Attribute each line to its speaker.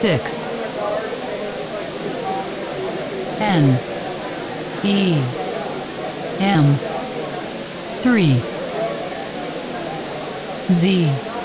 Speaker 1: six N E M three
Speaker 2: Z